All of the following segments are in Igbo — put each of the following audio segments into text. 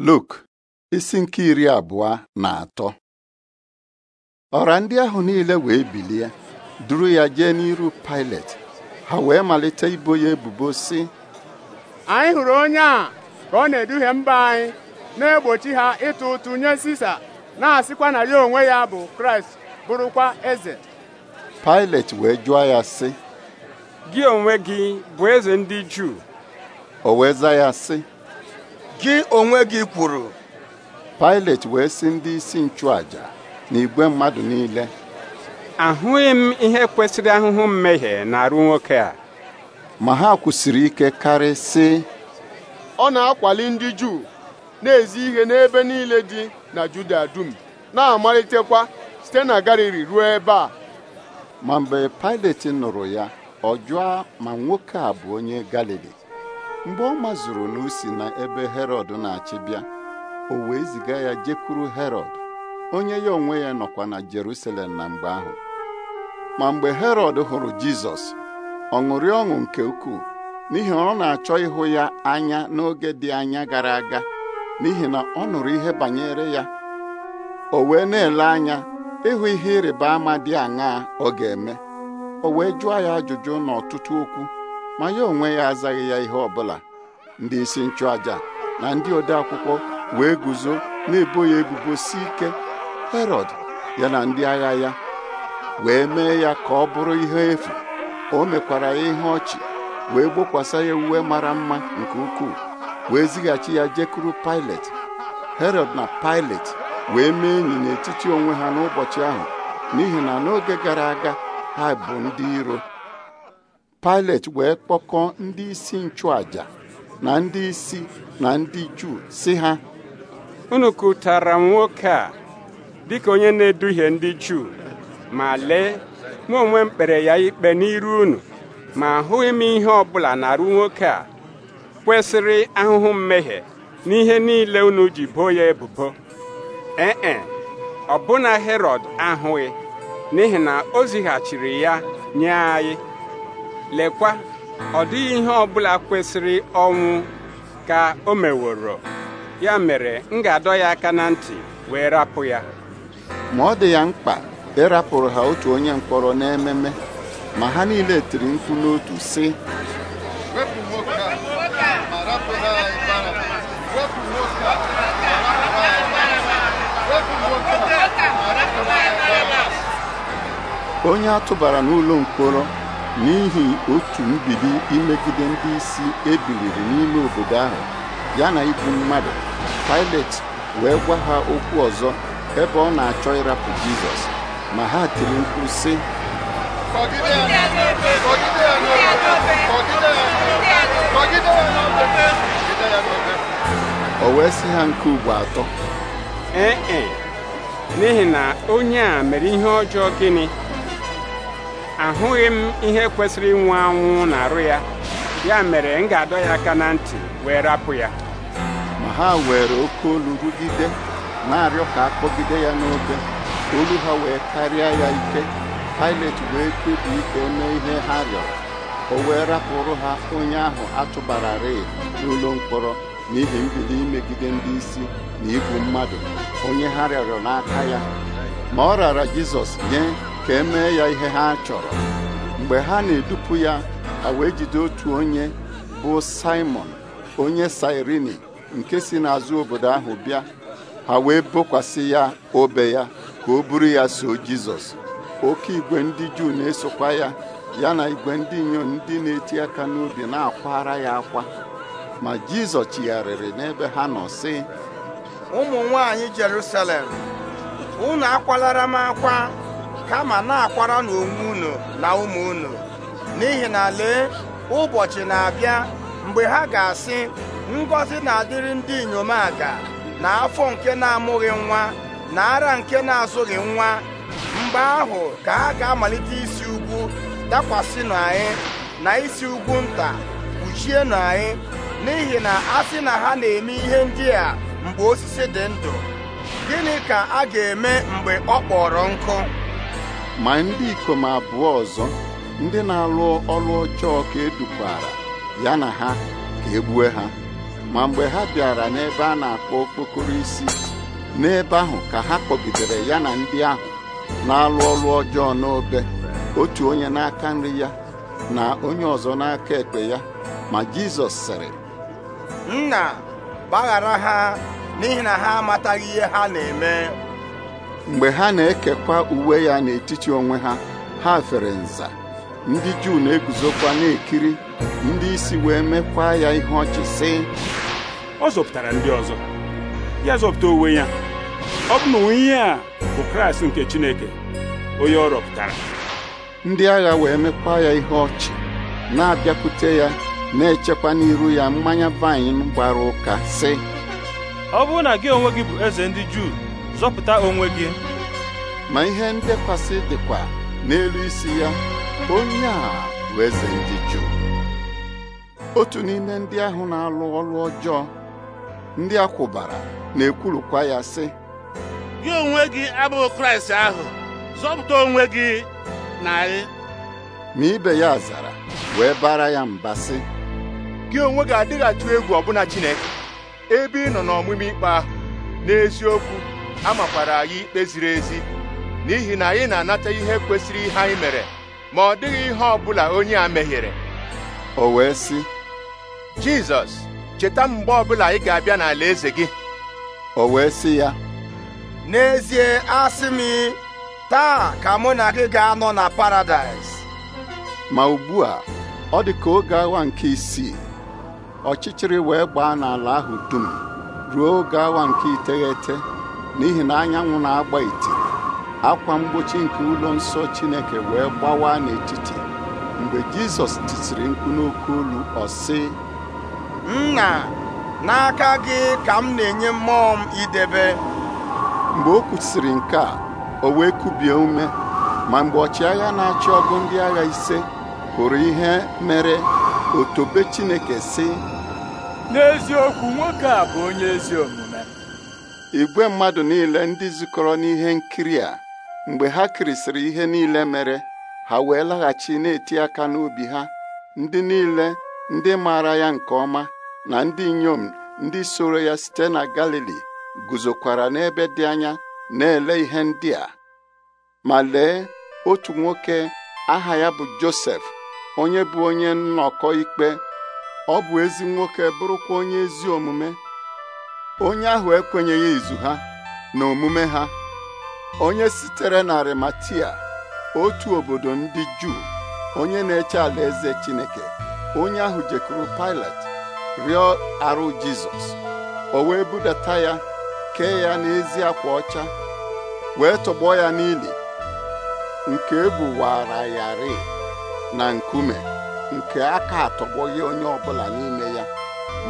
Luk isi nke iri abụọ na atọ ọra ndị ahụ niile wee bilie duru ya jee n'iru Pilet ha wee malite ibo ya ebubo si. anyị hụrụ onye a ka ọ na-eduhie mba anyị na-egbochi ha ịtụ ụtụ nye Sisa na-asịkwa na ya onwe ya bụ Kraịst bụrụkwa eze Pilet wee jụọ ya sị gị onwe gị bụ eze ndị Juu o wee za ya sị gị onwe gị kwuru Pilet wee sị ndị isi nchụaja na igwe mmadụ niile ahụghị m ihe kwesịrị ahụhụ mmehie na-arụ nwoke a ma ha kwụsịrị ike karị sị ọ na-akwali ndị Juu na-ezi ihe n'ebe niile dị na Juda dum na-amalitekwa site na Galili ruo ebe a ma mgbe Pilet nụrụ ya ọ jụọ ma nwoke a bụ onye Galili mgbe ọ mazuru na usi na ebe herọd na-achị bịa o wee ziga ya jekwuru herọd onye ya onwe ya nọkwa na jerusalem na mgbe ahụ ma mgbe herọd hụrụ jizọs ọ ṅụrị ọṅụ nke ukwuu n'ihi na ọ na-achọ ịhụ ya anya n'oge dị anya gara aga n'ihi na ọ nụrụ ihe banyere ya o wee na-ele anya ịhụ ihe ịrịba ama dị aṅaa ọ ga-eme o wee jụọ ya ajụjụ n'ọtụtụ okwu ma ya onwe ya azaghị ya ihe ọbụla ndị isi nchụàja na ndị odeakwụkwọ wee guzo na-ebo ya ebubo si ike Herọd ya na ndị agha ya wee mee ya ka ọ bụrụ ihe efu o mekwara ya ihe ọchị wee gbokwasa ya uwe mara mma nke ukwuu wee zighachi ya jekuru Pilet Herọd na Pilet wee mee enyi n'etiti onwe ha n'ụbọchị ahụ n'ihi na n'oge gara aga ha bụ ndị iro pilate wee kpọkọọ ndị isi nchụaja na ndị isi na ndị Juu si ha unu kụtara m nwoke a dịka onye na-eduhie ndị Juu ma lee mụ onwe m ya ikpe n'iru unu ma ahụghị m ihe ọbụla na-arụ nwoke a kwesịrị ahụhụ mmehie n'ihe niile unu ji boo ya ebubo ee ọbụna Herọd ahụghị n'ihi na o zighachiri ya nye anyị lekwa ọ dịghị ihe ọ bụla kwesịrị ọnwụ ka o meworo ya mere m ga-adọ ya aka na ntị wee rapụ ya ma ọ dị ya mkpa ịrapụrụ ha otu onye mkpọrọ n'ememe ma ha niile tiri nkwu n'otu sị onye a tụbara n'ụlọ mkpọrọ n'ihi otu mbibi imegide ndị isi ebiliri n'ime obodo ahụ ya na igbu mmadụ Pilet wee gwa ha okwu ọzọ ebe ọ na-achọ ịrapụ Jizọs ma ha tiri mkpu sị o wee sị ha nke ugbo atọ ee e, n'ihi na onye a mere ihe ọjọọ gịnị ahụghị m ihe kwesịrị ịnwụ anwụ na arụ ya ya mere m ga-adọ ya aka na ntị wee rapụ ya ma ha were oke olu rugide na-arịọ ka akpọgide ya n'obe olu ha wee karịa ya ike Pilet wee kpebi ike mee ihe ha rịọrọ o wee rapụrụ ha onye ahụ atụbararị n'ụlọ mkpọrọ n'ihi mbido imegide ndị isi na igwu mmadụ onye ha rịọrọ n'aka ya ma ọ rara Jizọs nye ka emee ya ihe ha chọrọ mgbe ha na-edupụ ya ha wee jide otu onye bụ Simon onye Sirini nke si n'azụ obodo ahụ bịa ha wee bokwasị ya obe ya ka o buru ya so Jizọs oke igwe ndị Juu na-esokwa ya ya na igwe ndị inyom ndị na-eti aka n'obi na-akwara ya akwa ma Jizọs chigharịrị n'ebe ha nọ sị ụmụ nwanyị Jerusalem unu akwalara m akwa kama na-akwara n'onwe unu na ụmụ unu n'ihi na lee ụbọchị na-abịa mgbe ha ga-asị ngọzi na-adịrị ndị inyom aga na afọ nke na-amụghị nwa na ara nke na-azụghị nwa mgbe ahụ ka a ga-amalite isi ugwu dakwasịnụ anyị na isi ugwu nta kpuchienụ anyị n'ihi na a sị na ha na-eme ihe ndị a mgbe osisi dị ndụ gịnị ka a ga-eme mgbe ọ kpọrọ nkụ ma ndị ikom abụọ ọzọ ndị na-alụ ọlụ ọjọọ ka edukwara ya na ha ka egbue ha ma mgbe ha bịara n'ebe a na-akpọ okpokoro isi n'ebe ahụ ka ha kpọgidere ya na ndị ahụ na-alụ ọlụ ọjọọ n'obe otu onye n'aka nri ya na onye ọzọ n'aka ekpe ya ma Jizọs sịrị nna gbaghara ha n'ihi na ha amataghị ihe ha na-eme mgbe ha na-ekekwa uwe ya n'etiti onwe ha ha fere nza ndị Juu na-eguzokwa na-ekiri ndị isi wee mekwa ya ihe ọchị sị ọ zọpụtara ndị ọzọ ya zọpụta onwe ya ọ bụ na onye a bụ Kraịst nke Chineke onye ọ rọpụtara ndị agha wee mekwa ya ihe ọchị na-abịakwute ya na-echekwa n'iru ya mmanya vaịn gbara ụka sị ọ bụrụ na gị onwe gị bụ eze ndị Juu zọpụta onwe gị ma ihe ndekwasị dịkwa n'elu isi ya onye a bụ eze ndị Juu otu n'ime ndị ahụ na-alụ ọrụ ọjọọ ndị a kwụbara na-ekwurukwa ya sị gị onwe gị abụghị Kraịst ahụ zọpụta onwe gị na anyị ma ibe ya zara wee bara ya mba sị gị onwe gị adịghị atụ egwu ọbụna Chineke ebe ị nọ n'ọmụmụ ikpe ahụ n'eziokwu a makwaara anyị ikpe ziri ezi n'ihi na anyị na-anata ihe kwesịrị ihe anyị mere ma ọ dịghị ihe ọ bụla onye a mehiere o wee sị Jizọs cheta mgbe ọbụla ị ga-abịa n'ala eze gị o wee sị ya n'ezie asị m taa ka mụ na gị ga-anọ na paradaịs ma ugbu a ọ dị ka oge awa nke isii ọchịchịrị wee gbaa n'ala ahụ dum ruo oge awa nke iteghete n'ihi na anyanwụ na-agba iti akwa mgbochi nke ụlọ nsọ Chineke wee gbawa n'etiti mgbe Jizọs titiri mkpu n'oke olu ọ sị nna n'aka gị ka m na-enye mmụọ m idebe mgbe o kwusiri nke a o wee kubie ume ma mgbe ọchịagha na-achị ọgụ ndị agha ise hụrụ ihe mere "otobe Chineke si" n'eziokwu nwoke a bụ onye ezi igwe mmadụ niile ndị zukọrọ n'ihe nkiri a mgbe ha kirisịrị ihe niile mere ha wee laghachi na-eti aka n'obi ha ndị niile ndị maara ya nke ọma na ndị inyom ndị soro ya site na Galili guzokwara n'ebe dị anya na-ele ihe ndị a ma lee otu nwoke aha ya bụ Josef onye bụ onye nnọkọ ikpe ọ bụ ezi nwoke bụrụkwa onye ezi omume onye ahụ ekwenyeghị izu ha na omume ha onye sitere na Arimatia otu obodo ndị Juu onye na-eche alaeze Chineke onye ahụ jekwuru Pilat rịọ arụ Jizọs o wee budata ya kee ya n'ezi akwa ọcha wee tọgbọ ya n'ili nke buwara ya rịị na nkume nke aka atọgbọghị onye ọbụla n'ime ya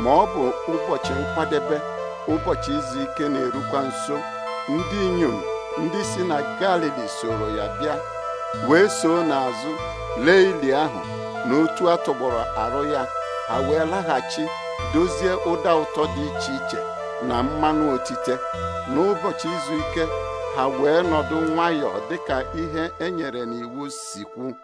ma ọ bụ ụbọchị nkwadebe ụbọchị izu ike na-erukwa nso ndị inyom ndị si na galili soro ya bịa wee soo n'azụ lee ili ahụ na otu atụgbọrọ arụ ya ha wee laghachi dozie ụda ụtọ dị iche iche na mmanụ otite n'ụbọchị izu ike ha wee nọdụ nwayọọ dịka ihe e nyere n'iwu sikwu.